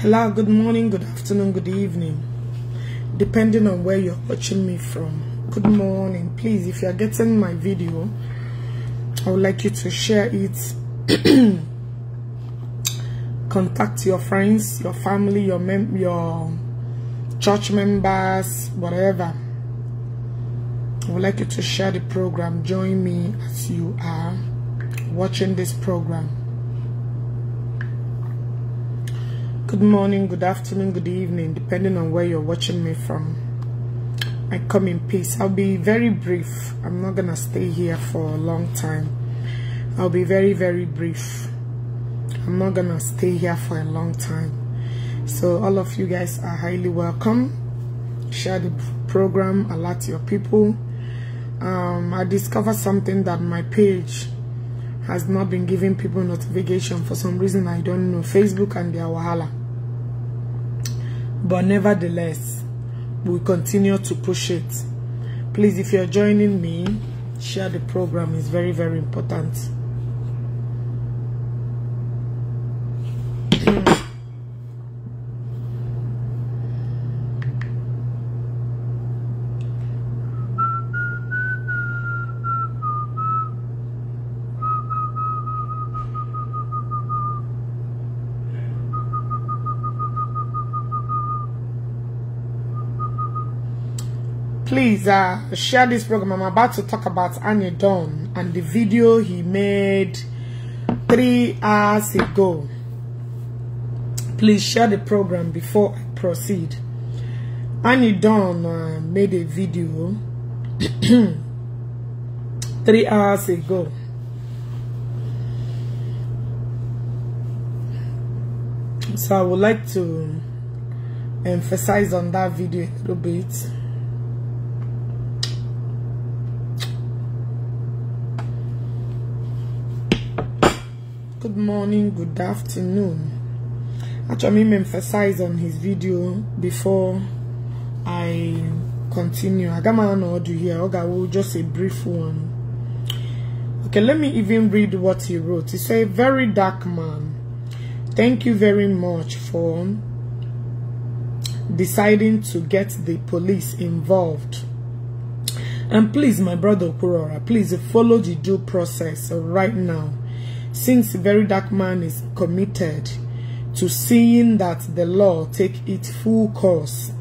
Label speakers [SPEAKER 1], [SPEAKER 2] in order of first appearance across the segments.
[SPEAKER 1] Hello, good morning, good afternoon, good evening, depending on where you're watching me from. Good morning. Please, if you're getting my video, I would like you to share it. Contact your friends, your family, your mem your church members, whatever. I would like you to share the program. Join me as you are watching this program. Good morning, good afternoon, good evening, depending on where you're watching me from. I come in peace. I'll be very brief. I'm not going to stay here for a long time. I'll be very, very brief. I'm not going to stay here for a long time. So all of you guys are highly welcome. Share the program, alert your people. Um, I discovered something that my page has not been giving people notification for some reason I don't know. Facebook and their Wahala. But nevertheless, we continue to push it. Please, if you're joining me, share the program. is very, very important. please uh, share this program i'm about to talk about Anya Don and the video he made three hours ago please share the program before i proceed Annie Don uh, made a video three hours ago so i would like to emphasize on that video a little bit morning, good afternoon. Actually, emphasize on his video before I continue. I got my own audio here. Okay, we'll just a brief one. Okay, let me even read what he wrote. He's a Very dark man. Thank you very much for deciding to get the police involved. And please, my brother Kurora, please follow the due process right now since very dark man is committed to seeing that the law take its full course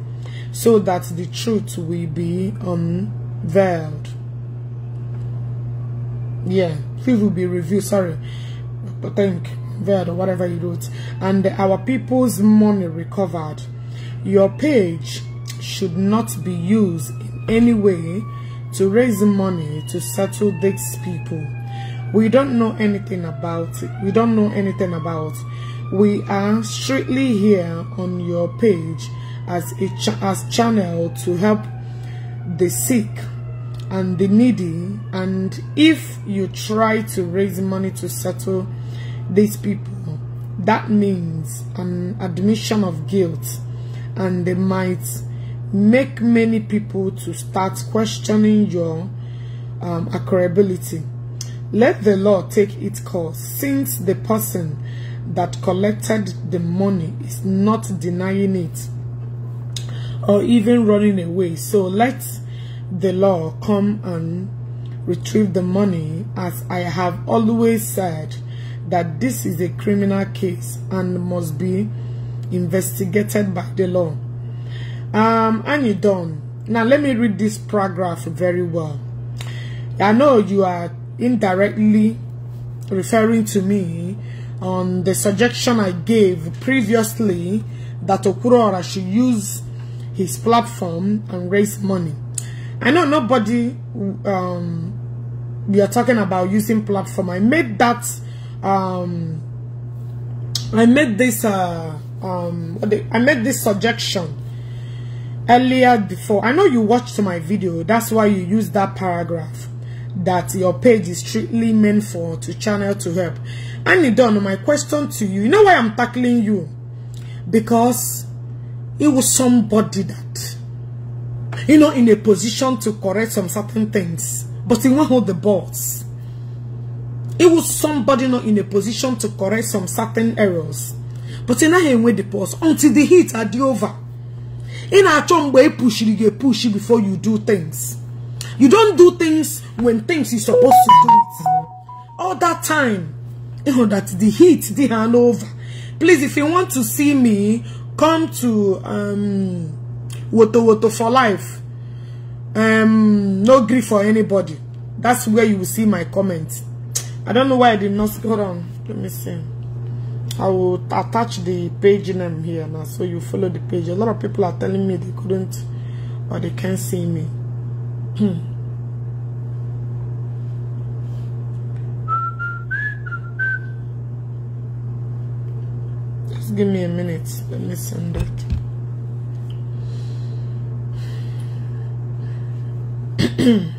[SPEAKER 1] so that the truth will be unveiled yeah truth will be revealed sorry but think veiled or whatever you wrote and our people's money recovered your page should not be used in any way to raise money to settle these people we don't know anything about it. We don't know anything about. It. We are strictly here on your page as a ch as channel to help the sick and the needy. And if you try to raise money to settle these people, that means an admission of guilt, and they might make many people to start questioning your um, let the law take its course, since the person that collected the money is not denying it or even running away. So let the law come and retrieve the money as I have always said that this is a criminal case and must be investigated by the law. Um, and you done. Now let me read this paragraph very well. I know you are indirectly referring to me on the suggestion I gave previously that Okurora should use his platform and raise money. I know nobody um, we are talking about using platform. I made that um, I made this uh, um, I made this suggestion earlier before. I know you watched my video. That's why you used that paragraph. that your page is strictly meant for to channel to help. And done my question to you. You know why I'm tackling you? Because it was somebody that, you know, in a position to correct some certain things, but he won't hold the balls. It was somebody not in a position to correct some certain errors, but in a way the pause until the heat are the over. In a chombe push, you get pushy before you do things. You don't do things when things you're supposed to do it. All that time, you eh, oh, know, that the heat, the hangover. Please, if you want to see me, come to um, Woto Woto for Life. Um, no grief for anybody. That's where you will see my comments. I don't know why I did not. Hold on. Let me see. I will attach the page name here now so you follow the page. A lot of people are telling me they couldn't or they can't see me. Hmm. Just give me a minute. Let me send it.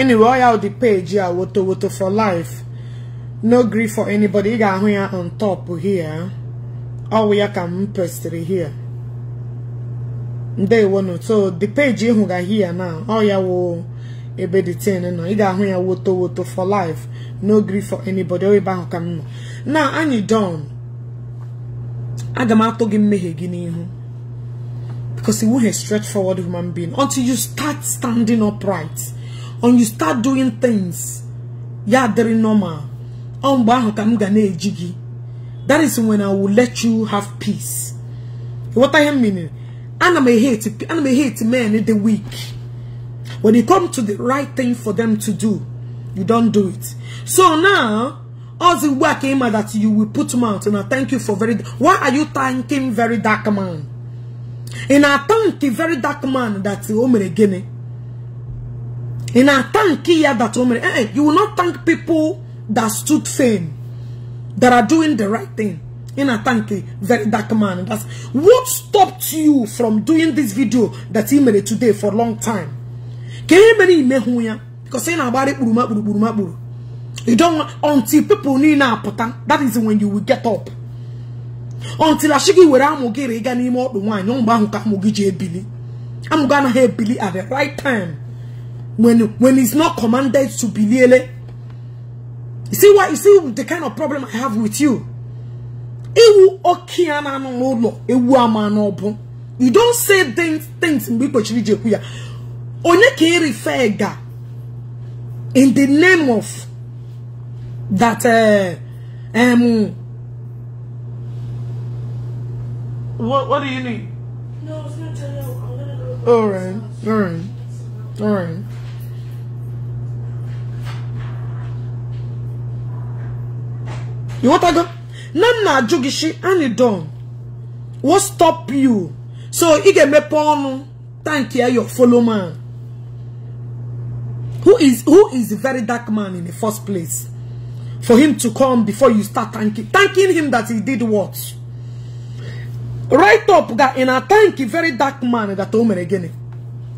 [SPEAKER 1] anyway ọ ya dị page a woto woto for life no gree for anybody ị ga-ahụ ya on top here ọwụ ya ka m pestịrị here ndewonu so the page ị hụga here na ọ ya wụ ebe the tin nọ ị ga-ahụ ya woto woto for life no gree for anybody ọ ebe ahụ ka m nọ now anyị don aga m atụ gị mmehie gị n'ihu because iwu he straight forward human being until you start standing upright and you start doing things ya adịrị normal ọ gị that is when I will let you have peace What I am meaning? I m ehate I m hate men the weak when you come to the right thing for them to do you don't do it so now all the work, ka that you will put them out I thank you for very why are you thanking very dark man i thank the very dark man that o oh, mere gịnị in a thank you that eh, eh, You will not thank people that stood firm, that are doing the right thing. In a thank you, very dark man. That's what stopped you from doing this video that he made today for a long time. Because in about it, you don't until people need that is when you will get up. Until I shiggy where I'm gonna get any more not wine, no man who I'm gonna have Billy at the right time when when he's not commanded to be lele. You see what you see the kind of problem I have with you. You don't say things things in Onye in the name of that uh, um what what do you need? No, it's not tell you. All right, all right, all right. You want to go? iwotago nana ajugishi ani don What stop you so ị get me ọnụ Thank you, your follow man who is who is a very dark man in the first place for him to come before you start thanking thanking him that he did what right up that in a thank you, very dark man that omer again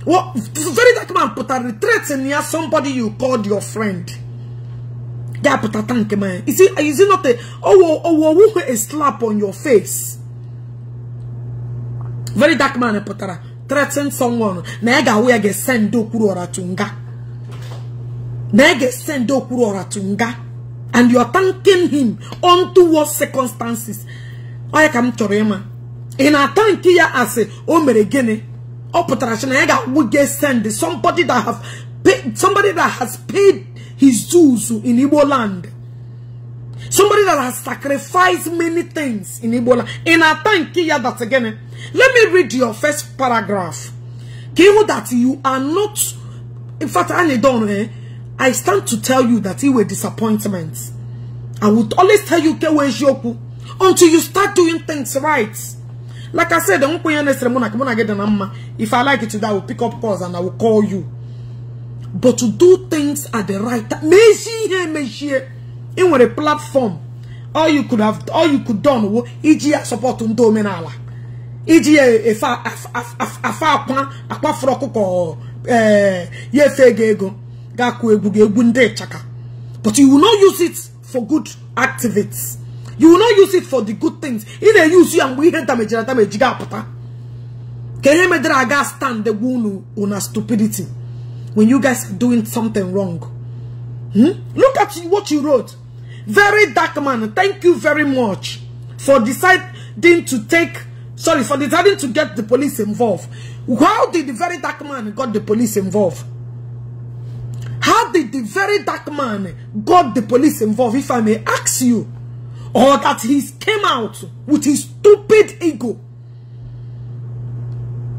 [SPEAKER 1] what very dark man put a threat in here somebody you called your friend that a tank man. Is it is it not a oh oh oh, oh oh oh a slap on your face? Very dark man putara threaten someone. Nega we get send do kurora tunga. Nega send do kurora tunga. And you are thanking him unto what circumstances. I come to him. In a thank ya as a omere gene. Oputara shenega we get send somebody that have paid somebody that has paid his Jews in Igbo land. Somebody that has sacrificed many things in Igbo land. In a time, Kia, that again. Eh? Let me read your first paragraph. Kihu that you are not, in fact, I don't eh? I stand to tell you that it were disappointments. I would always tell you Kewe Joku until you start doing things right. Like I said, if I like it today, I will pick up calls and I will call you. but to do things at the right time mezie ihe emezie ị nwere platform all you could have all you could done wo iji ya support ndị omenala iji ya efe afa e akwa akpafuru ọkụkọ ee ya efe ego ego ga-akụ egwu gị egwu ndị ịchaka but you will not use it for good activities you will not use it for the good things ị na use ya mgbe ihe damejiri adameji ga-apụta ka ihe medere aga stand gwu unu una stupidity when you guys doing something wrong. Hmm? Look at what you wrote. Very dark man, thank you very much for deciding to take, sorry, for deciding to get the police involved. How did the very dark man got the police involved? How did the very dark man got the police involved, if I may ask you? Or that he came out with his stupid ego.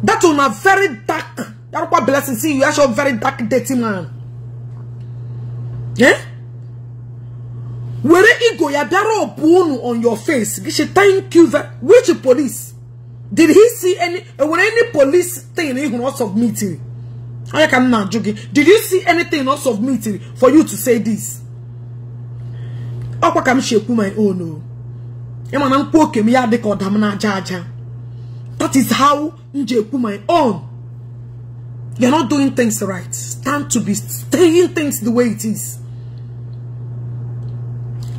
[SPEAKER 1] That on a very dark Yaruba blessing see you as your very dark, dirty man. Eh? Were ego ya biara on your face. She thank you very which police? Did he see any eh, when any police thing he of submitting? I can not joking. Did you see anything of submitting for you to say this? Okwa kam ekwu my own no. Oh. Emana mkwoke mi ya deka odam na aja aja. That is how nje ekwu my own. You're not doing things right. Stand to be staying things the way it is.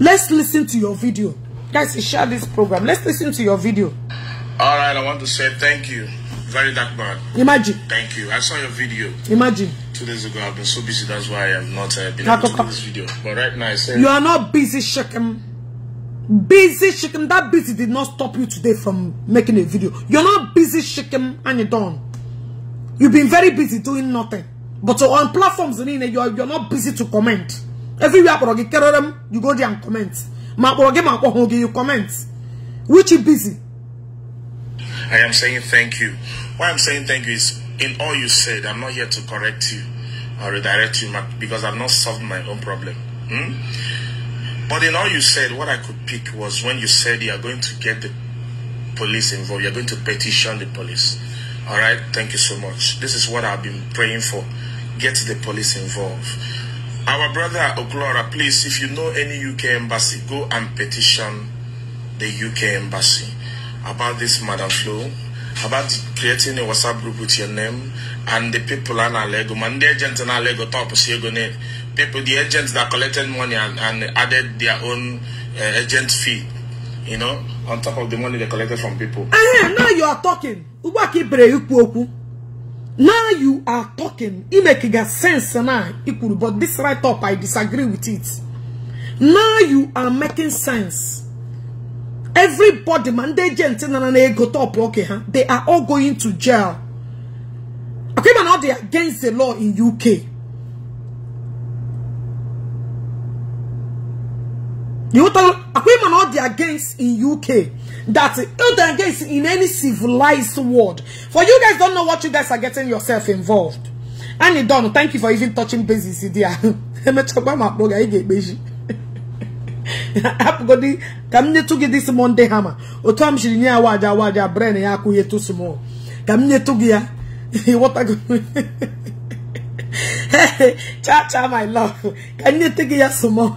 [SPEAKER 1] Let's listen to your video. Guys, share this program. Let's listen to your video.
[SPEAKER 2] All right, I want to say thank you. Very dark man. Imagine. Thank you. I saw your video. Imagine. Two days ago, I've been so busy. That's why I have not uh, been able to do this video. But right now, I said You are not
[SPEAKER 1] busy, Shekem. Busy, Shekem. That busy did not stop you today from making a video. You're not busy, Shekem, and you're done. You've been very busy doing nothing. But on platforms, you're, you're not busy to comment. Everywhere you go there and comment. You comment. Which is busy.
[SPEAKER 2] I am saying thank you. Why I'm saying thank you is in all you said, I'm not here to correct you or redirect you because I've not solved my own problem. Hmm? But in all you said, what I could pick was when you said you are going to get the police involved, you're going to petition the police. All right, thank you so much. This is what I've been praying for. Get the police involved. Our brother Oglora, please, if you know any UK embassy, go and petition the UK embassy about this Madam flow, about creating a WhatsApp group with your name and the people in Alego, man, the agents in Alego, top people, the agents that collected money and, and added their own uh, agent fee you know, on top of the money they collected from people.
[SPEAKER 1] Uh, now you are talking. Uba Now you are talking. It makes sense now. But this right up, I disagree with it. Now you are making sense. Everybody, man, they gentle and they go top, okay, huh? They are all going to jail. Okay, man, now they are against the law in UK. You tell women all they against in UK that they're against in any civilized world. For you guys don't know what you guys are getting yourself involved. And you don't thank you for even touching bases there. Apogodi kamne tugi this Monday hammer. Otom shiri ni awaja awaja brain ya ku yetu small. Kamne tugi ya. What a Cha cha my love. Kamne tugi ya small.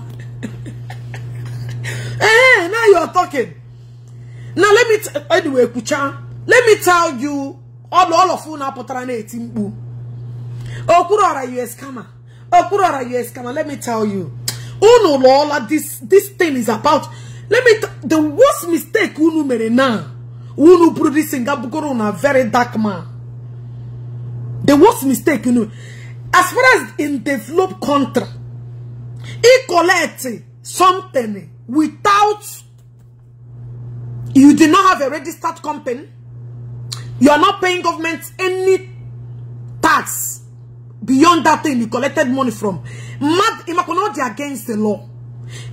[SPEAKER 1] Eh, now you are talking. Now let me anyway, Kucha. Let me tell you all all of you now put on potrane timbu. Okurora you scammer. Okurora you scammer. Let me tell you. Oh no, lola this this thing is about. Let me the worst mistake unu made now. Unu produce Singapore on a very dark man. The worst mistake you know. As far as in develop country, he collect something without you did not have a registered company you are not paying government any tax beyond that thing you collected money from mad imakonodi against the law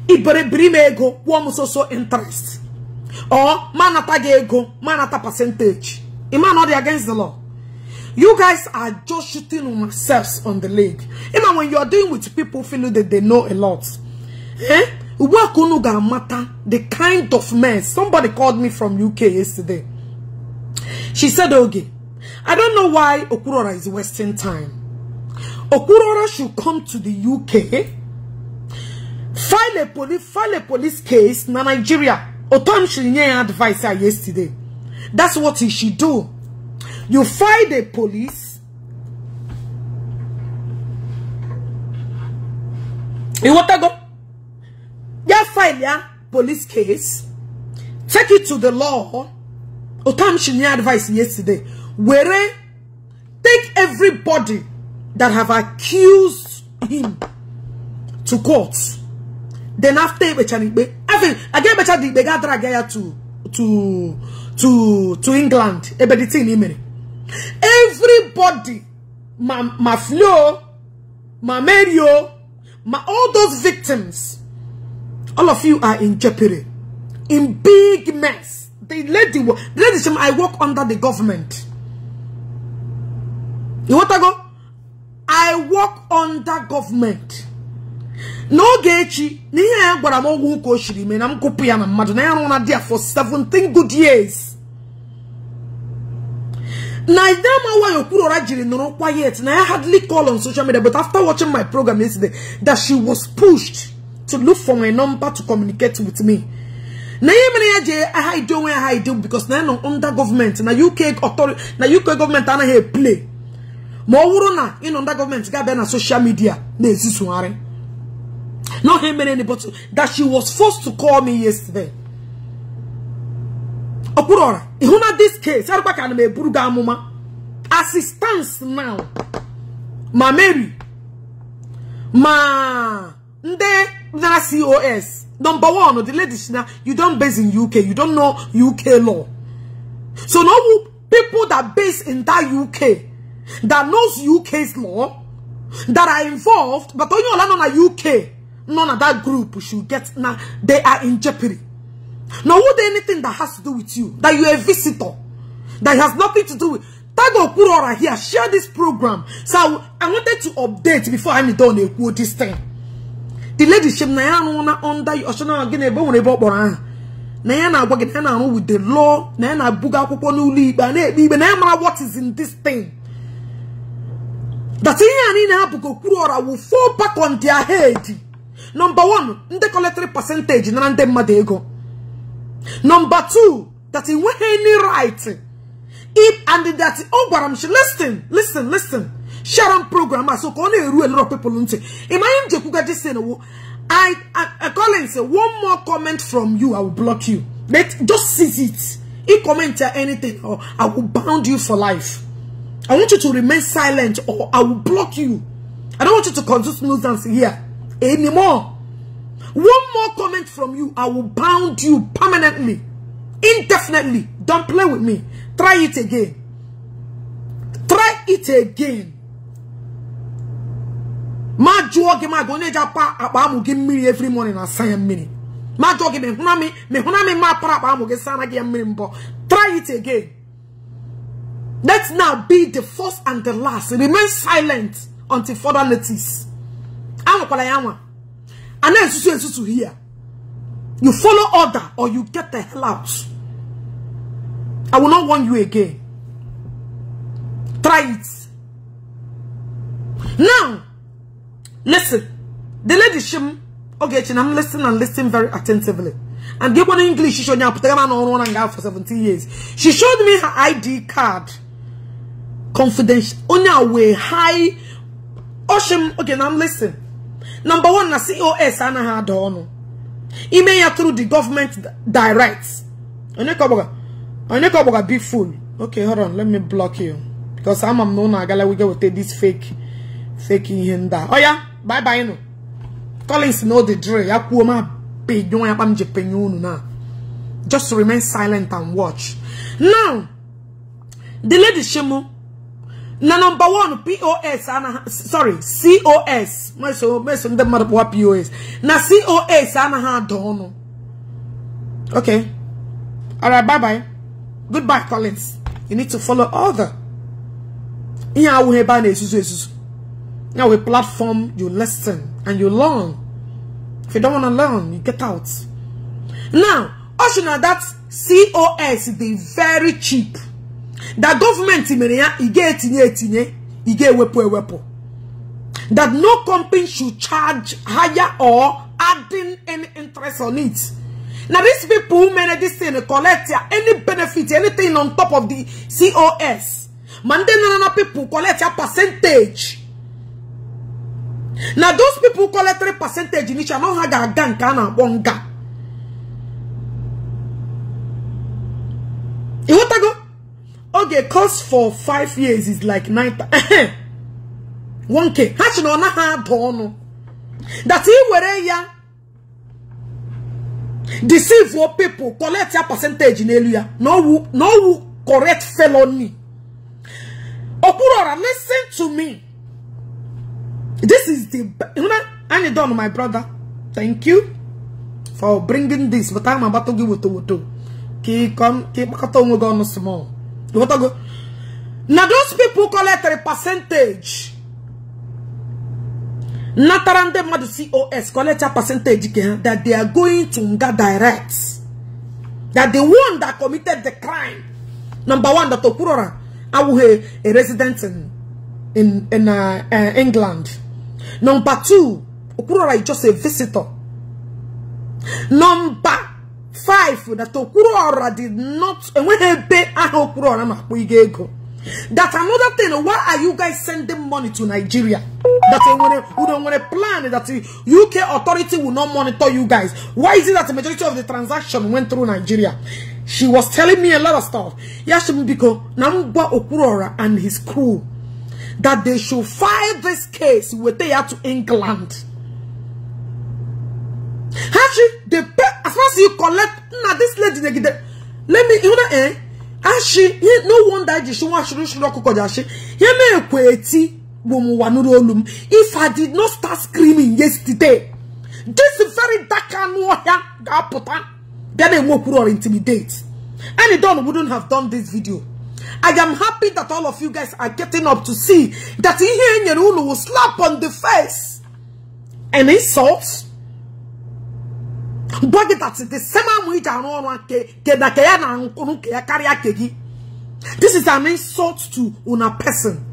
[SPEAKER 1] iberebirime ego one so so interest or manata ego manata percentage imanodi against the law you guys are just shooting on yourselves on the leg even when you're doing with people feeling that they know a lot eh? the kind of men. Somebody called me from UK yesterday. She said, okay, I don't know why Okurora is wasting time. Okurora should come to the UK, file a police, file a police case in Nigeria. Otom Shirinye advised her yesterday. That's what he should do. You file the police. You want to go? ya file yeah, police case take it to the law otamshini advice yesterday where take everybody that have accused him to court then after ikpe aga emecha dị ikpe ga to to to to england everybody my my flo my mario my all those victims all of you are in jeopardy. In big mess. The lady, ladies, I work under the government. You want to go? I work under government. No, echi Niye ihe ya gwara m ọgwụ ụka shiri mee na m gụpụ na mmadụ na ya na dia for 17 good years na idamawayo kwurora jiri nụrụ quiet na ya hardly call on social media but after watching my program yesterday that she was pushed to look for my number to communicate with me. Na yemene je ah, I do when I do because na no under government na UK authority na UK government ana here play. Ma owuru na in under government ga be social media na ezisuare. Not him any but that she was forced to call me yesterday. Okurora, ihuna this case, erukwa ka na me buru ga Assistance now. Ma Mary. Ma ndị that COS. Number one, the lady, you don't base in UK. You don't know UK law. So no people that base in that UK, that knows UK's law, that are involved, but only on a UK, none of that group should get, now they are in jeopardy. Now would anything that has to do with you, that you're a visitor, that has nothing to do with, Tago Kurora here, share this program. So I wanted to update before I'm done with this thing. the lady ladyship na ya anwụ na onda ọchọna gị na-ebe nwere ebe ọ kpọrọ aha na ya na-agwa gị na ya na-arụ with the law na ya na-abuga akwụkwọ n'ụlọ ikpe a na-ekpe ikpe na ya mara what is in this thing that ihe a niile ha bụ ka okwuru ọra wu fall back on their head number one ndị collectory percentage na ndị mmadụ ego number two that e nweghị any right if and that ọ gwara m shi listen listen listen Sharon program so only a lot of people in my Jekuga just saying oh, I, I, I and say one more comment from you I will block you But just seize it if comment anything or oh, I will bound you for life I want you to remain silent or I will block you I don't want you to consume nuisance here anymore one more comment from you I will bound you permanently indefinitely don't play with me try it again try it again ma jụọ gị ma gị onye ji apa akpa amụ gị mmiri every morning asa ya mmiri ma jụọ gị me? m ma para akpa amụ gị sara gị ya mmiri mbọ try it again let's now be the first and the last remain silent until further notice am ya nwa and na-esusu esusu here you follow order or you get the hell out i will not warn you again try it now Listen. The lady shim. Okay, chinam listen and listen very attentively. And give one English, she showed me on and for seventeen years. She showed me her ID card. Confidential. On our way, high. Oh, Oshim, okay, now listen. Number one, na COS, ana ha dono. Email through the government direct. Onyekoboga. Onyekoboga, be full. Okay, hold on, let me block you. Because I'm a known agala, we go with this fake, fake in here. Oh yeah? bye bye no Collins know the drill ya kuo ma pe you. ya pam je penyunu na just remain silent and watch now the lady shemo na number one POS ana sorry COS so. meso ndị mmadụ kpọwa POS na COS ha ada ọnụ okay all right bye bye goodbye Collins you need to follow other yeah I will be na-ezuzu ezuzu Now a platform, you listen and you learn. If you don't want to learn, you get out. Now, also now that COS they very cheap. That government in e get e that no company should charge higher or adding any interest on it. Now these people who manage this thing collect any benefit, anything on top of the COS. Mandana people collect a percentage. na those people collectary percentage in na ha ga-aga nke a na-akpọ nga ịghọtago oge cost for five years is like nine 1k ha si na ọ naghị ada ọnụ that i were ya deceive your people collect ya percentage n'elu ya na owu correct felony okpuru ọra listen to me This is the, you know, and done, my brother. Thank you for bringing this. But I'm about to give it to you. Keep We keep on, small. What I go. Now those people collect a percentage. Natarande Madu COS collect a percentage that they are going to get direct. That the one that committed the crime, number one, that Okurora, I will a resident in in, in uh, uh, England. Number two, Okurora is just a visitor. Number five, that Okurora did not, and when he pay, ah, Okurora, that another thing, why are you guys sending money to Nigeria? That we don't want to plan that the UK authority will not monitor you guys. Why is it that the majority of the transaction went through Nigeria? She was telling me a lot of stuff. Yes, because Namba Okurora and his crew that they should file this case with they to England. Actually, they pay as far as you collect. Now this lady, they get let me you know eh. Actually, no wonder she wants to show up. If I did not start screaming yesterday, this very dark and warrior, then they walk or intimidate. And it done wouldn't have done this video. I am happy that all of you guys are getting up to see that Ihe Nyereunu will slap on the face and insult. But that's the same way that This is an insult to una person.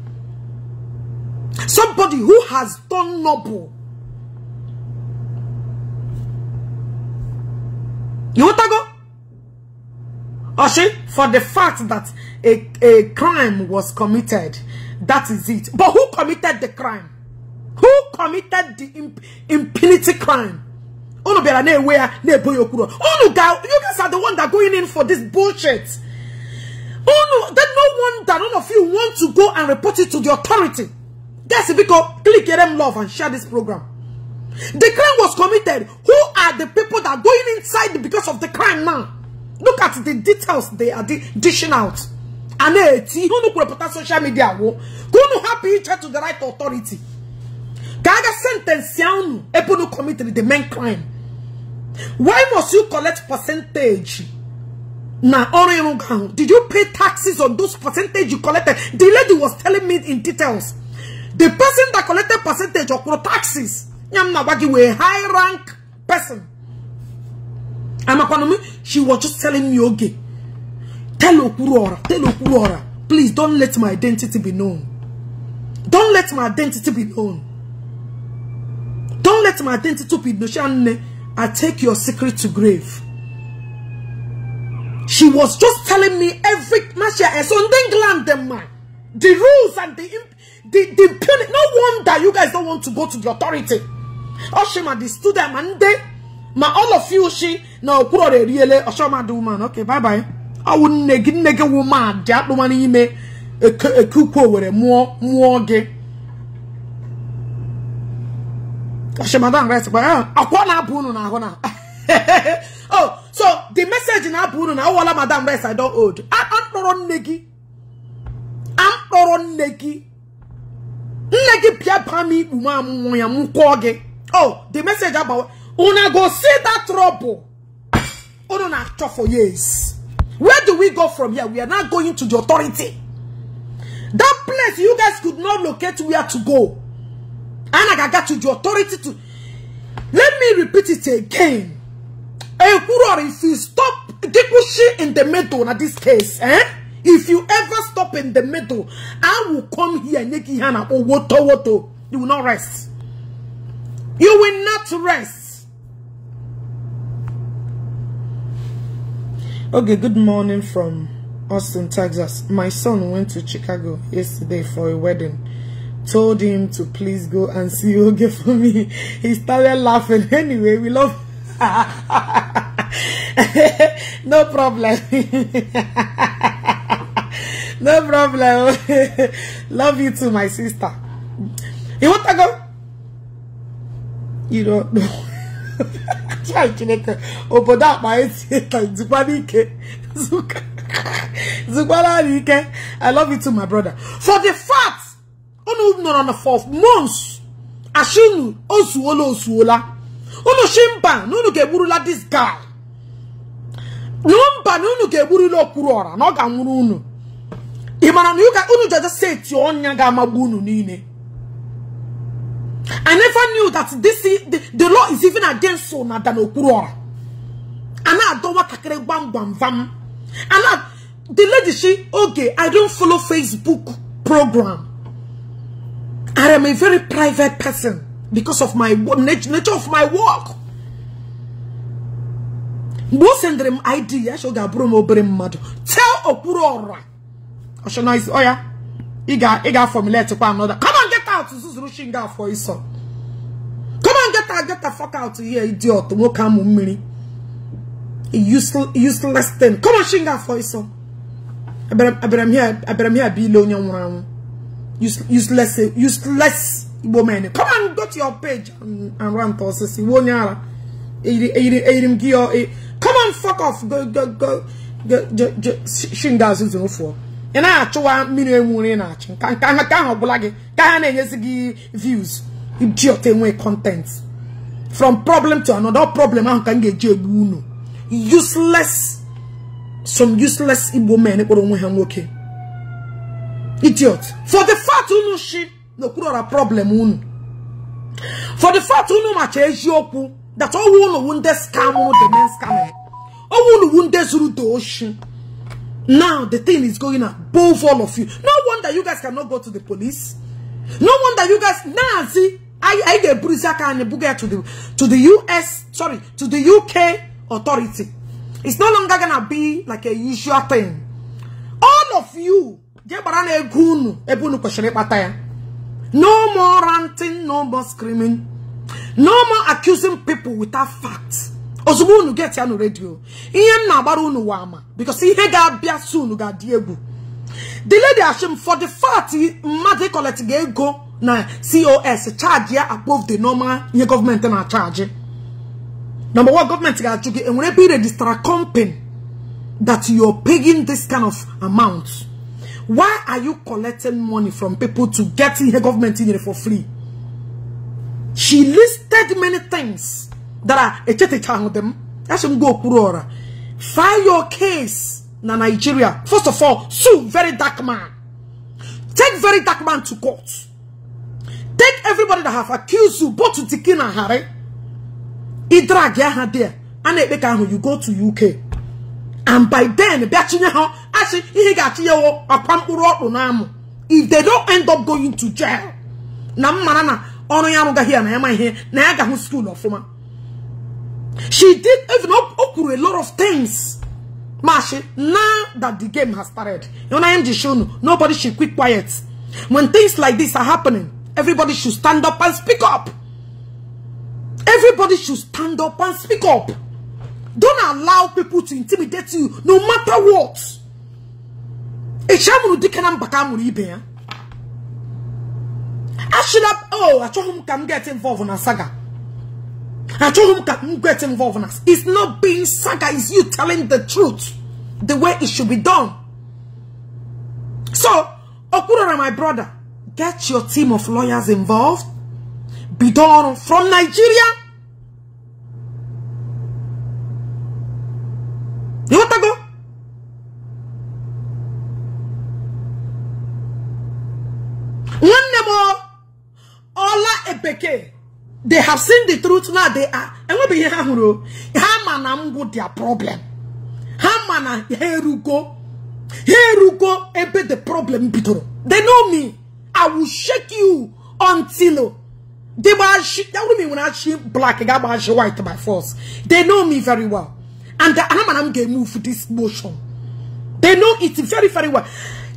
[SPEAKER 1] Somebody who has done noble. You want to go? Oshi, for the fact that a, a crime was committed. That is it. But who committed the crime? Who committed the imp impunity crime? Unu bera ne wea ne boyokuro. you guys are the one that going in for this bullshit. Unu, that no one that none of you want to go and report it to the authority. That's because click them love and share this program. The crime was committed. Who are the people that are going inside because of the crime now? Look at the details they are dishing out. And eti, who no could social media wo? go no happy each to the right authority? Kaga sentence yanu, epo no committed the main crime. Why must you collect percentage? Now, nah, did you pay taxes on those percentage you collected? The lady was telling me in details. The person that collected percentage of taxes, Nyamna Wagi, were a high rank person. I'm a m she was just telling me "Okay, tell Okwuluora tell Okwuluora please don't let my identity be known don't let my identity be known don't let my identity be known I take your secret to grave she was just telling me every Masha is on England the man the rules and the the the no wonder you guys don't want to go to the authority Oshima the student and they ma all of you shi na okwurọra eriele ọchọmadụ woman okay bye bye ọwụ nne gị nne gị woman dị akpụma n'ime ekukwu owere mụọ mụọ gị ọchọmadụ right eh, akwa na-abụ unu na ahụ na oh so the message na-abụ unu na ọwụla oh, madam rest i don't don hold akpọrọ nne gị akpọrọ nne gị nne gị pịa pam ikpu m amụmụ ya m kwụọ gị oh the message agbawa Una go see that trouble. Una talk for years. Where do we go from here? We are not going to the authority. That place you guys could not locate where to go. And I got to the authority to... Let me repeat it again. if you stop Dikushi in the middle, now this case, eh? If you ever stop in the middle, I will come here, and Hannah or Woto Woto. You will not rest. You will not rest. Okay, good morning from Austin, Texas. My son went to Chicago yesterday for a wedding. Told him to please go and see Oge for me. He started laughing. Anyway, we love... no problem. no problem. love you too, my sister. You want to go? You don't know. chai chineke obodo akpa eti zikwana ike zikwana ike i love you too my brother for the fact unu nọrọ na for months ashinu ozuola ozuola unu shi na unu ga-egburula this guy mba na unu ga-egburula okpuru ọra na ọ ga-anwụrụ unu ị mara na unu jaja seti ọnya ga-amagbu unu niile I never knew that this the, the law is even against Sona than Okuruora. And I don't want to bam bam bam. And I, the lady, she, okay, I don't follow Facebook program. I am a very private person because of my nature of my work. Most send idea, show Gabriel Madu. Tell Okuruora. Oshana is, oh yeah. He got, formulate to another. Come on, get out. Susuru Shinga for his son. Come on, get out. Get the fuck out here, idiot. Wokamu mini. Useless, useless thing. Come on, Shinga for his son. Abraham here, Abraham here, be lonely. Useless, useless woman. Come on, go to your page and, and rant or sissy. Wonyara. Come on, fuck off. Go, go, go. Shinga, Susuru for. ị na-achụwa mmiri enwuri ị na-achụ nka nka ahụ ọgwụla gị ka ha na-enyezi gị views idiot enwe content from problem to another problem ahụ ka m ga-eji egbu unu useless some useless igbo men kpọrọ onwe ha nwoke idiot for the fact unu shi n'okpuru problem unu for the fact unu macha eziokwu that owu unu wunde scam the men scam owu unu wunde zuru to oshi Now the thing is going above all of you. No wonder you guys cannot go to the police. No wonder you guys Nazi. I I get Burizaka and Buga to the to the US, sorry, to the UK authority. It's no longer gonna be like a usual thing. All of you, no more ranting, no more screaming, no more accusing people without facts. ozugbo unu get ya na redio ihe m na-agbara unu wa ama because ihe ga-abịa so ga-adị egwu the lady ashim for the fact mmadụ collect ego na cos charge ya above the normal ihe gọọmenti na-achaji number one government ga-ajụ gị enwere ebe iregistra company that you're paying this kind of amount why are you collecting money from people to get ihe gọọmenti nyere for free she listed many things dara echetichahụdị m asị m gwa okpuru ọra file your case na Nigeria first of all sue very dark man take very dark man to court take everybody that have accused you both Ntikin ghari Harry gi aha there a na-ekpe ka ahụ you go to UK and by then bịa ha asị ihe ga-achịnyewo ọkwa mkpụrụ ọkpụ na amụ if they don't end up going to jail na m mara na ọrụ ya arụgaghị ya na ya ma ihe na ya ga skuul ọfụma She did even up Okuru a lot of things. Mashi, now that the game has started, you know, the show, nobody should keep quiet. When things like this are happening, everybody should stand up and speak up. Everybody should stand up and speak up. Don't allow people to intimidate you, no matter what. I should have, oh, I told him can get involved in a saga. I told him get involved in us. it's not being saga it's you telling the truth the way it should be done so Okurara, my brother get your team of lawyers involved Bidon from Nigeria go? One more. ọla Ebeke they have seen the truth now they are enwebeghị ha hụrụ ha ma na ngwụ their problem ha ma na ha erugo ha erugo ebe the problem bidoro they know me i will shake you until they gbawụrụ when I shake black ga-agba achị white by force they know me very well and ha ma na m ga-emove this motion they know it very very well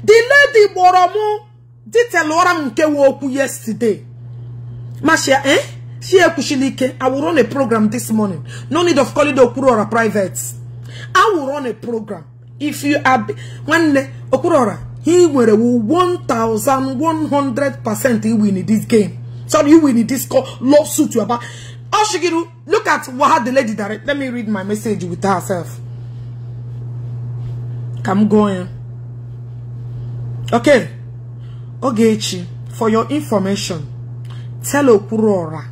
[SPEAKER 1] the lady Boromo did tell m nke yesterday masha eh Shia Kushilike, I will run a program this morning. No need of calling the Okurora private. I will run a program. If you are when Okurora, he will 1100% he win in this game. So you win in this call, lawsuit you about. Oshigiru, look at what the lady direct. Let me read my message with herself. I'm going. Okay. Okay, for your information, tell Okurora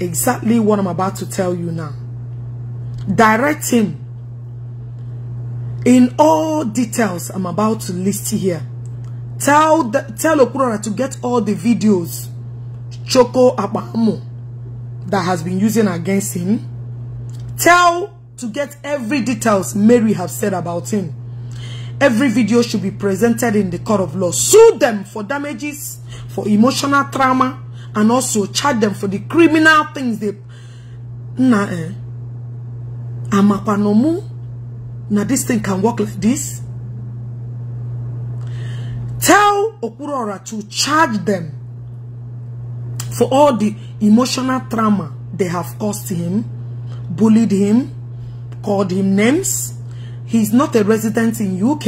[SPEAKER 1] exactly what I'm about to tell you now. Direct him in all details I'm about to list here. Tell the, tell Okurora to get all the videos Choco Abamo that has been using against him. Tell to get every details Mary have said about him. Every video should be presented in the court of law. Sue them for damages, for emotional trauma, and also charge them for the criminal things they na eh amapanomu na this thing can work like this tell okurora to charge them for all the emotional trauma they have caused him bullied him called him names he's not a resident in uk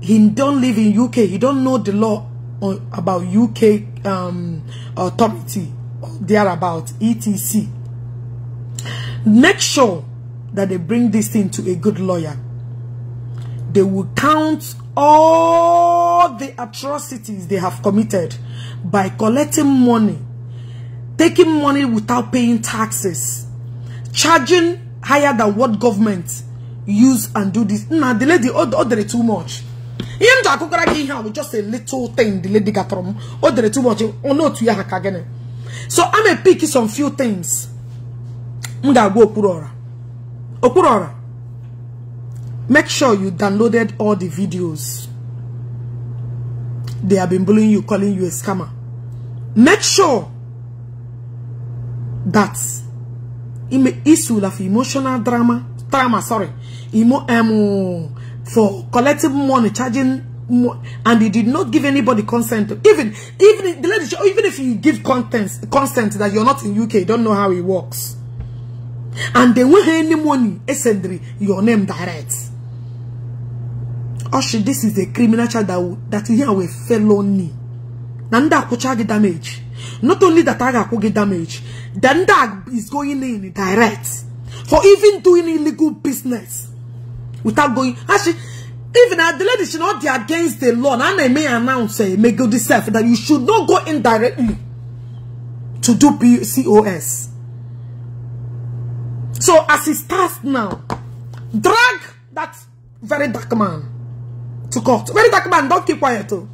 [SPEAKER 1] he don't live in uk he don't know the law about UK um, authority thereabout etc make sure that they bring this thing to a good lawyer they will count all the atrocities they have committed by collecting money taking money without paying taxes charging higher than what government use and do this now the lady ordered too much ihe m ji akụkọrọ gị ihe a bụ just a little thing the lady gatọrọ m o dere too much otu ya ha ka gịnị so I'm a pick some few things m ga-agwa okpuru ọra okpuru ọra make sure you downloaded all the videos they have been bullying you calling you a scammer make sure that issue of emotional drama drama sorry emo um, for collecting money, charging mo and he did not give anybody consent. Even even the lady, even if you give consent consent that you're not in UK, you don't know how it works. And they won't any money, essentially, your name direct. Oh Oshi, this is a criminal charge that, that here we felony. Nanda kuchagi damage. Not only that I could get damage, then that is going in direct for even doing illegal business. without going. Actually, even the lady should not be against the law. And I may announce, uh, eh, may go self that you should not go indirectly to do PCOS. So as it starts now, drag that very dark man to court. Very dark man, don't keep quiet. Oh.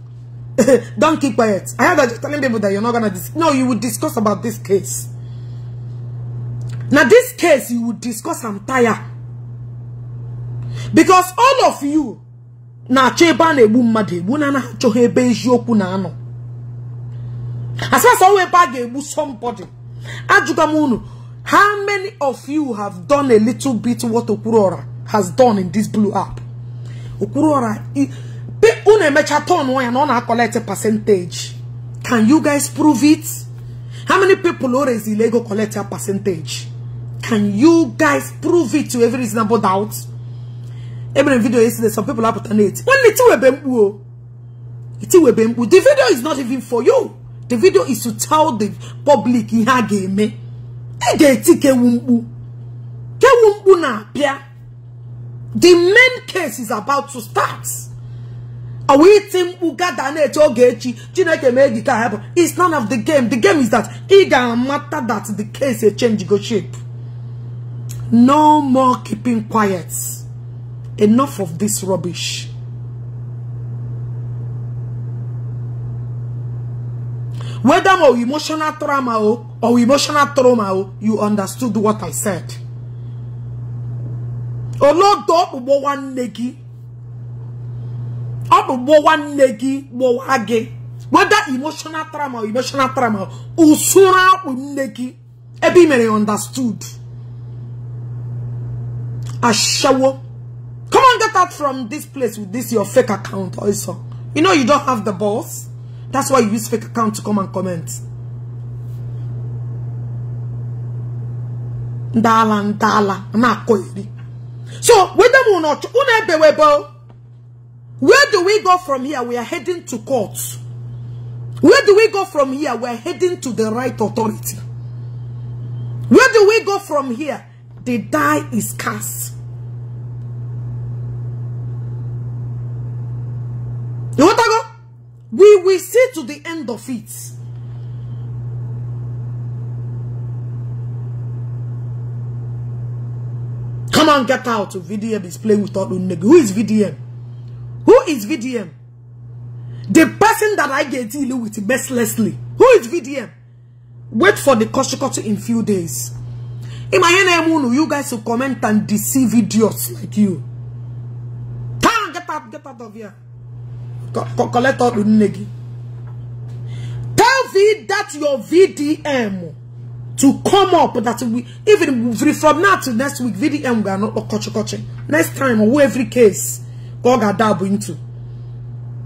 [SPEAKER 1] don't keep quiet. I heard that you're telling people that you're not gonna No, you will discuss about this case. Now this case you will discuss I'm tired because all of you na-achọ ebe a na-egbu mmadụ egbu na na-achọghị ebe eziokwu na anọ asasa ebe a ga-egbu somebody ajụga how many of you have done a little bit what Okurora has done in this blue app pe una mecha tọn ya na ọ na-akọlekt percentage can you guys prove it how many people o rezila ego collect a percentage can you guys prove it to every reasonable doubt ebere m video yesterday some people apụta na-eti nwanne tiwebe mkpu o tiwebe mkpu the video is not even for you the video is to tell the public ihe a ga-eme ị ga-eti kewu mkpu kewu mkpu na-apịa the main case is about to start ọwa iti mkpu gada na-eche oge echi chineke mee gị ka hapụ it's none of the game the game is that ị ga matter that the case change go shape no more keeping quiet Enough of this rubbish. Whether more emotional trauma or emotional trauma, you understood what I said. Olodo ugbo nwanne gị. Ọ bụ ugbo nwanne gị gbowa gị. Whether emotional trauma or emotional trauma, usura akpụ nne mere understood. Ashawo. Come on, get out from this place with this your fake account also. You know you don't have the balls. That's why you use fake account to come and comment. Ndala, ndala, nakoiri. So, whether or not, where do we go from here? We are heading to court. Where do we go from here? We're heading to the right authority. Where do we go from here? The die is cast. We will see to the end of it. Come on, get out. VDM is playing with all Unegu. Who is VDM? Who is VDM? The person that I get deal with mercilessly. Who is VDM? Wait for the Koshikoto in few days. In my name, you guys will comment and deceive idiots like you. Come on, get out, get out of here collect all the negi. Tell V that your VDM to come up that we even from now to next week VDM we are not coach oh, coaching. Next time who oh, every case God got dab into.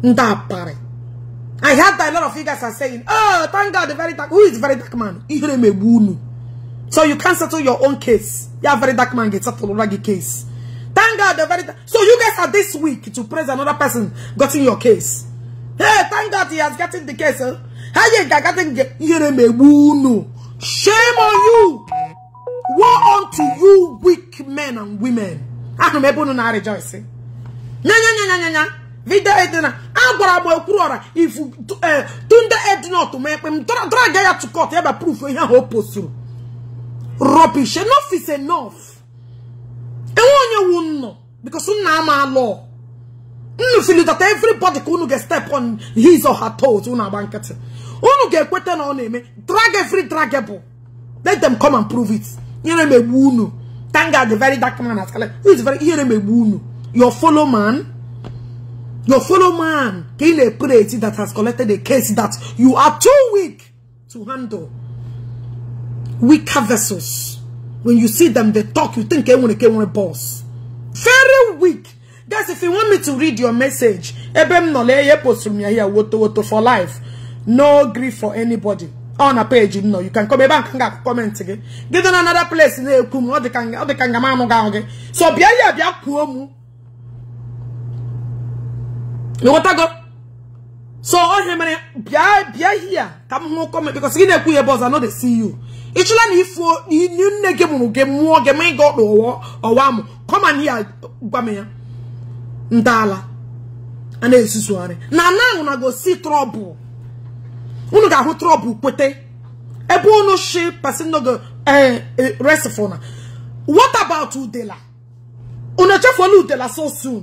[SPEAKER 1] Ndapare. I heard that a lot of you guys are saying, oh, thank God, the very dark, who is very dark man? So you can't settle your own case. Yeah, very dark man gets settled case. Thank God the very So you guys are this week to praise another person in your case. Hey, thank God he has gotten the case. Huh? Eh? Shame on you. Woe unto you weak men and women. I m ebe unu na-rejoice. Nyanyanyanyanya. Video edina. Agwara m ekwuru ọra if eh, Tunde to me. ekpe m drag ya to court ebe proof ihe ahụ o Rubbish. Enough is enough enwe onye wu nnọ because nna ama law. You feel that everybody could get step on his or her toes unu agba nkịtị unu get ekweta on him, drag every dragable let them come and prove it You're a wound. Thank God the very dark man asala Who is very you m egbu unu your follow man your follow man in a na that has collected a case that you are too weak to handle weaker vessels when you see them, they talk, you think they want to a boss. Very weak. Guys, if you want me to read your message, for life. No grief for anybody. On a page, you know, you can come back and comment again. Get on another place in the Kumu, or the Kanga, or the Kangamano Gange. So, Bia Bia Kuomu. You want to go? So, on him, Bia Bia here. Come home, comment because you know, boss, I know they see you. ịchọla na ifu nne gị mụrụ gị mụọ gị ma ị ga ọkpa ọwa mụ kọma ya gwa m ya ndala a na-ezuzugharị na anaghị ahụ na gosi trọbụl unu ga-ahụ trọbụl kweta ebe unu shi pasinogo eh, eh, resifona what about udela unu echefuola udela so soon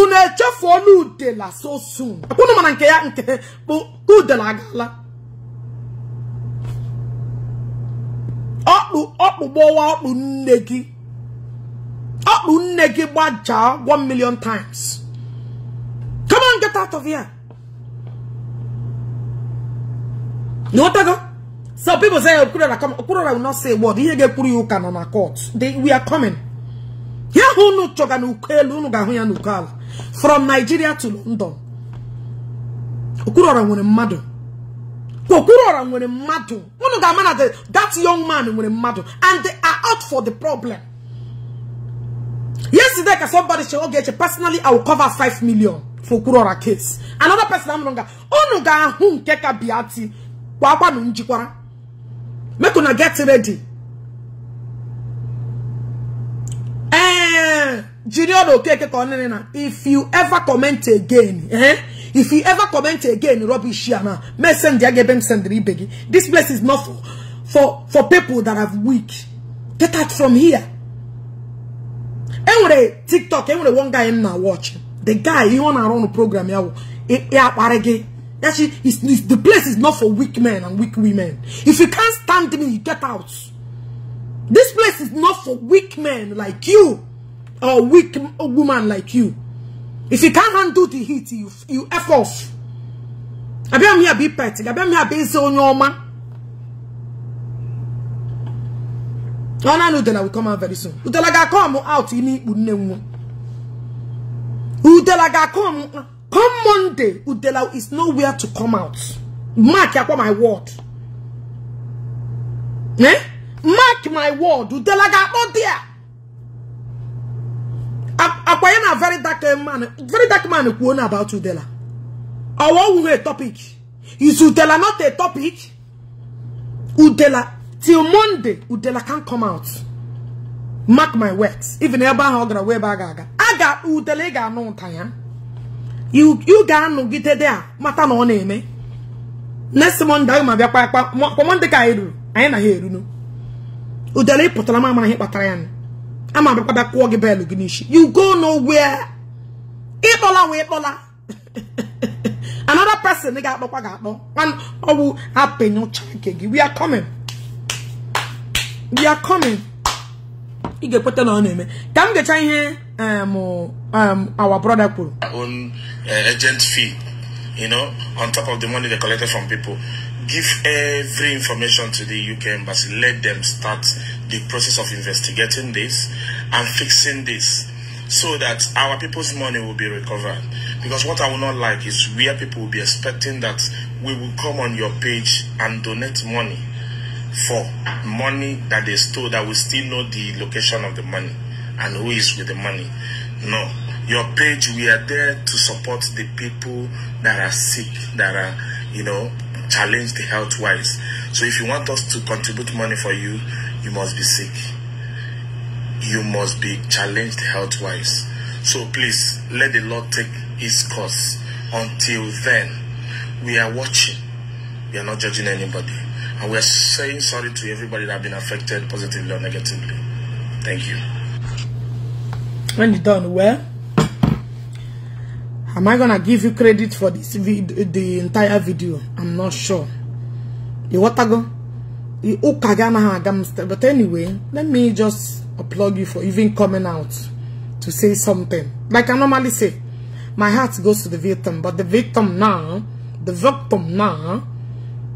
[SPEAKER 1] unu echefuola udela so soon unu mana nke ya nke bụ udela agaala ọkpụ ọkpụ gbọwa ọkpụ nne gị ọkpụ nne gị gbajaa 1 million times come on get out of here n'otago so people say okwurora come okwurora will not say word ihe ga-ekwuru ya ụka nọ na court they we are coming ya hụ unu chọga n'ukwu elu unu ga-ahụ ya n'ukwu ala from Nigeria to London okwurora nwere mmadụ Gokurora nwere mmadụ unu ga-ama na that young man nwere mmadụ and they are out for the problem yesterday ka somebody che oge che personally I will cover 5 million for Okwuluora case another person amụrụ nga unu ga-ahụ nke ka biati gbagbanụ njikwara make una get ready eh jiri ọnụ okeke ka ọ nene na if you ever comment again eh If you ever comment again, rubbish here Messenger send This place is not for, for, for people that are weak. Get out from here. And when TikTok, and when one guy in now watch, the guy he wanna run a program, yeah, Actually, it's, it's, the place is not for weak men and weak women. If you can't stand me, you get out. This place is not for weak men like you or weak woman like you. If you can't handle the heat, you, you F off. I be me a be petty. I be me a be so nyoma. Oh, that I will come out very soon. Udela ga come out in it. Udela ga come. Come Monday, Udela is nowhere to come out. Mark yakwa my word. Eh? Mark my word. Udela ga out there. ọkwa ya na very dark eh, man very dark man kwuo na about udela ọwa owuwe topic is udela not a topic udela till monday udela can come out mark my words even ebe ahụ ọ gara wee ebe a ga-aga udela ị ga-anụ ụta ya you ga-anọgide a mata na ọ na-eme next monday ma bịakwa kwa monday ka anyị ruru anyị na ha erunu udela ị pụtara m amaghị kpatara ya nụ ama me kwaba kwa ge belu ginishi you go nowhere itola we itola another person nigga akpo kwa akpo one owu oh, apenyo chakegi we are coming we are coming i ge put on him kam ge chan here um um our brother kwuru
[SPEAKER 2] own uh, agent fee you know on top of the money they collected from people give every information to the UK embassy let them start the process of investigating this and fixing this so that our people's money will be recovered. Because what I will not like is where people will be expecting that we will come on your page and donate money for money that they stole that we still know the location of the money and who is with the money. No. Your page, we are there to support the people that are sick, that are, you know, challenged health-wise. So if you want us to contribute money for you, you must be sick. You must be challenged health wise. So please let the Lord take his course. Until then, we are watching. We are not judging anybody. And we are saying sorry to everybody that have been affected positively or negatively. Thank you.
[SPEAKER 1] When you done, well, am I gonna give you credit for this video, the entire video? I'm not sure. You water go. But anyway, let me just applaud you for even coming out to say something. Like I normally say, my heart goes to the victim, but the victim now, the victim now,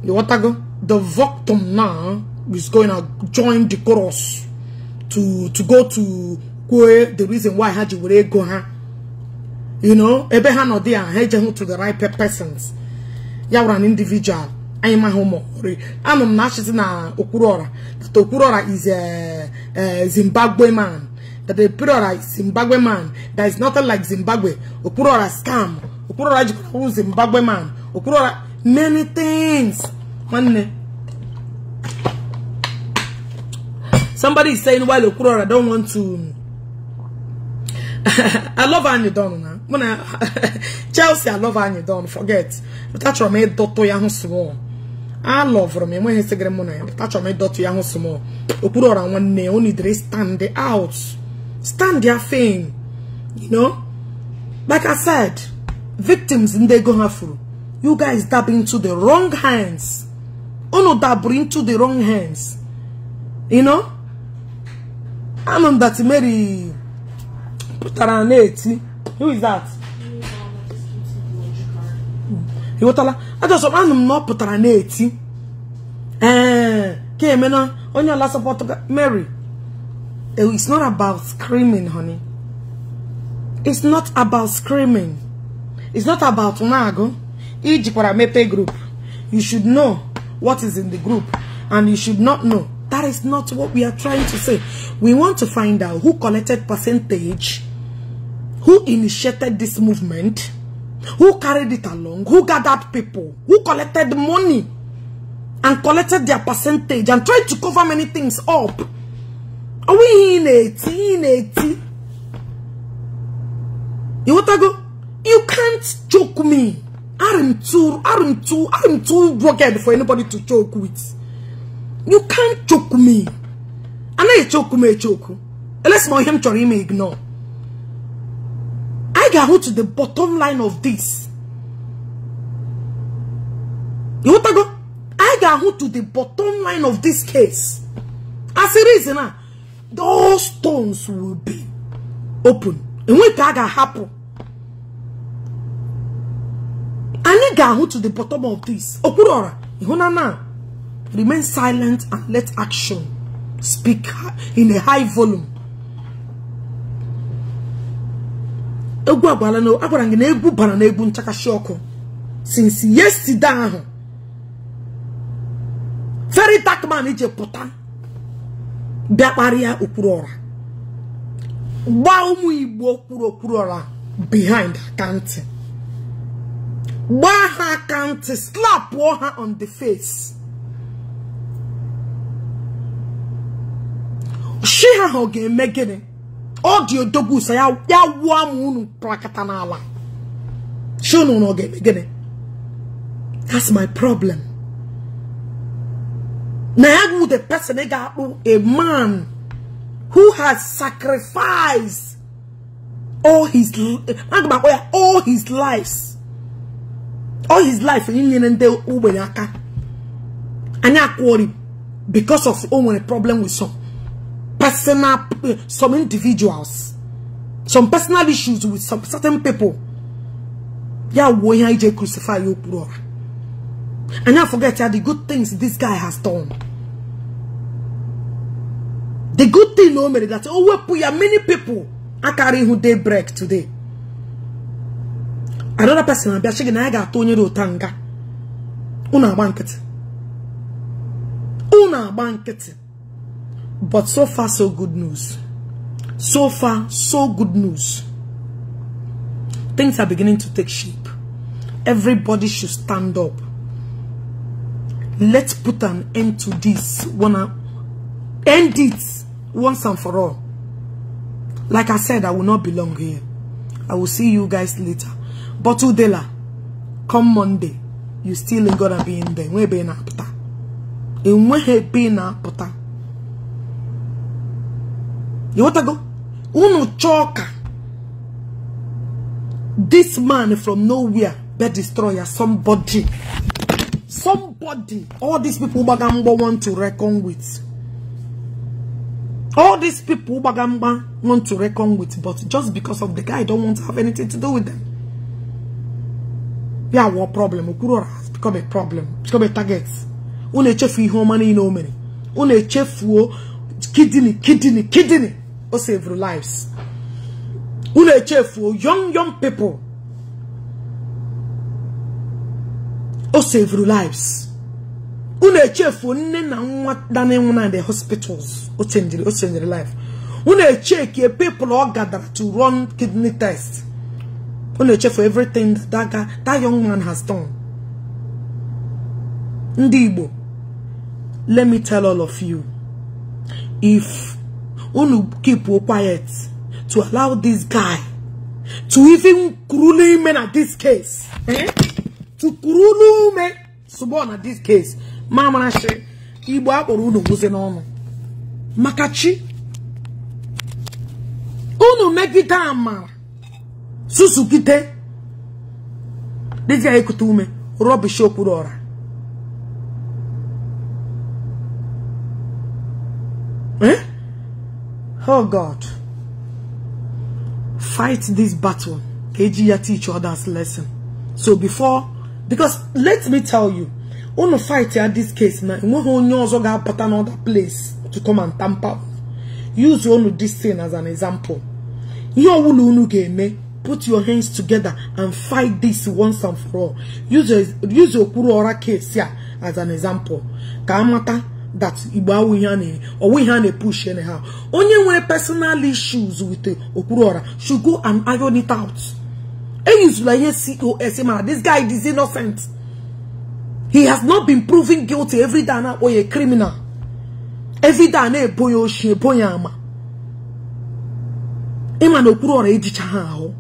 [SPEAKER 1] the what I go, the victim now is going to join the chorus to to go to where the reason why Haji would go huh? You know, or there, Haji to the right persons. You are an individual. anyị maha ụmụ ọkpọrọ anụ m na achịzi na Okwuluora okwuru is a Zimbabwe man that is Zimbabwe man that is nothing like Zimbabwe scam Zimbabwe man Okwuluora many things nwanne somebody is saying while Okwuluora don't want to I na Chelsea I love Don ya hụ alọvụrụ m enweghị sigịrị mụ na ya achọrọ m ịdọtụ ya hụ sị m okpuru ọra nwanne ya onidere stand out stand their fame you know like I said victims ndị ego ha furu you guys dab into the wrong hands unu dabụrụ into the wrong hands you know anụ dat Mary pụtara na-eti who is that ịghọtala ajọsọ anụ m na ọ pụtara na-eti ee ka emena onye ọla sọpọtụ Mary eh, it's not about screaming honey it's not about screaming it's not about na-agụ ijikwara mepe group you should know what is in the group and you should not know that is not what we are trying to say we want to find out who collected percentage who initiated this movement who carried it along, who gathered people, who collected money and collected their percentage and tried to cover many things up. Are we in it? in it? You want to go? You can't choke me. I'm too, I'm too, I'm too rugged for anybody to choke with. You can't choke me. And I choke me, choke. Unless my him chori ignore. I can go to the bottom line of this. You want to go? I can go to the bottom line of this case. As a reason, uh, those stones will be open. And when that can happen, I can go to the bottom of this. Okurora, you know Remain silent and let action speak in a high volume. egwu agbala na agwara gị na egwu bara na egwu nchakashi ọkụ since yesterday ahụ very dark man ije pụta bịakparịa kparịa okpuru ọra gbaa ụmụ igbo okpuru okpuru ọra behind akantị gbaa ha akantị slapụọ ha on the face shi ha ọ ga-eme gịnị audio dobu sa ya wa mu prakata na ala shono no ge gene that's my problem na with the person ga a man who has sacrificed all his all his lives all his life in and aka and because of only problem with some personal, some individuals, some personal issues with some certain people. Yeah, why I crucify you, bro. And I forget yeah, the good things this guy has done. The good thing, no, that oh, we put many people are carrying who they break today. Another person, I'm checking. I got Tony Rotanga. Una banket. Una banket. But so far, so good news. So far, so good news. Things are beginning to take shape. Everybody should stand up. Let's put an end to this. Wanna end it once and for all. Like I said, I will not belong here. I will see you guys later. But Udela, come Monday, you still ain't gonna be in there. we a You want to Iwotago, unu choka. This man from nowhere, bed destroyer, somebody. Somebody. All these people Ubagamba want to reckon with. All these people Ubagamba want to reckon with, but just because of the guy, I don't want to have anything to do with them. Yeah, what problem? Ukurora has become a problem. It's become a target. Unechefu home money no o mere. Unechefuo kidney kidney kidney o save lives na-eche echefuo young young people o save lives na-eche echefuo nne na nwa danenwu na the hospitals o changere o na life unu echekie people ọ gadara to run kidney test unu echefuo everything that, that, that young man has done ndị Igbo let me tell all of you if unu keep quiet to allow this guy to even kurulu men at this case eh? to kurulu men suborn at this case mama na say igbo akpọrọ unu gwuze n'ọnụ maka chi unu megide amara susukite dịka ekute ume rọbish okwuru ọra Eh? Oh God. Fight this battle. Ejiya teach others lesson. So before, because let me tell you, on fight at this case now, you also got put another place to come and tamper. Use one this thing as an example. You will game put your hands together and fight this once and for all. Use your use your Kuru case here as an example. Kamata. that igbo awụ ihe a na ihe a na-epush onye nwere personal issues with okpuru ọra should go and iron it out eyizula ihe cos e ma this guy is innocent he has not been proven guilty every day na criminal every day na-ebo ya oshi ebo ya ama ịma na okpuru ọra ejicha ha ahụ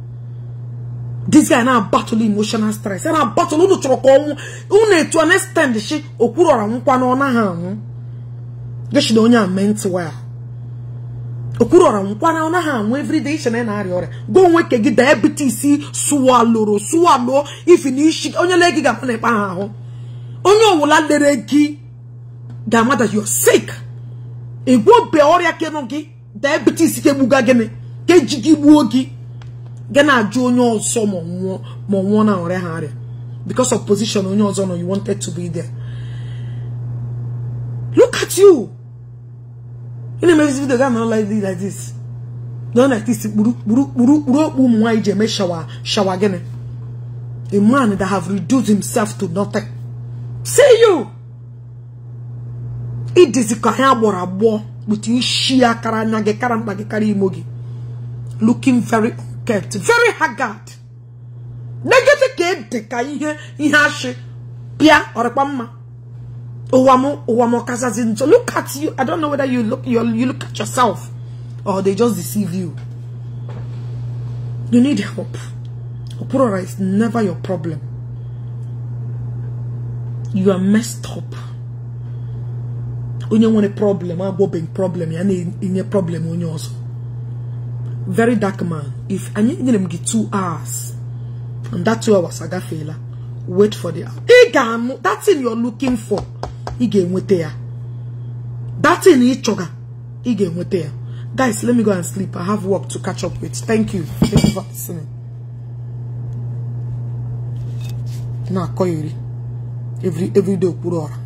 [SPEAKER 1] this guy na battle emotional stress ya na battle unu chọrọ ka ọnwụ unu etu an extend shi okpuru ọra nwụkwa ọ naghị anwụ geshi na onye a ment waya okwuru ọra nkwana ọ naghị anwụ everyday iche na arịa ọrịa gwa onwe ke gị diabetes sụwalụrụ sụwalụọ ifi na isi onye lee gị ga-akpa na ịkpa ha ahụ onye ọwụla lere gị ga-ama that you are sick ọrịa kenụ gị diabetes ke gịnị keji gị gbuo gị gị na-ajụ onye ọzọ ma nwụọ ma nwụọ na ọrịa ha arịa because of position onye ọzọ nọ you wanted to be there look at you ị na-eme this video ga anọ like this like this nọ like this kpuru okpu ụmụ nwaanyị ji eme shawa shawa gịnị a man that have reduced himself to nothing see you idizi ka anyị agbọrọ agbọọ kpụta isi ya kara anya gị kara mkpa gị kara imo gị looking very kept very haggard negede ka ede ka ihe ihe ashị pịa ọrịkpa mma So look at you. I don't know whether you look you look at yourself or they just deceive you. You need help. Oporora is never your problem. You are messed up. Onye want a problem, I'm bobbing problem, you in a problem you also. Very dark man. If I need him get two hours, and that two hours I got failure wait for the that thing you're looking for ị ga-enweta that thing ị guys let me go and sleep i have work to catch up with thank you thank you for listening Now every every day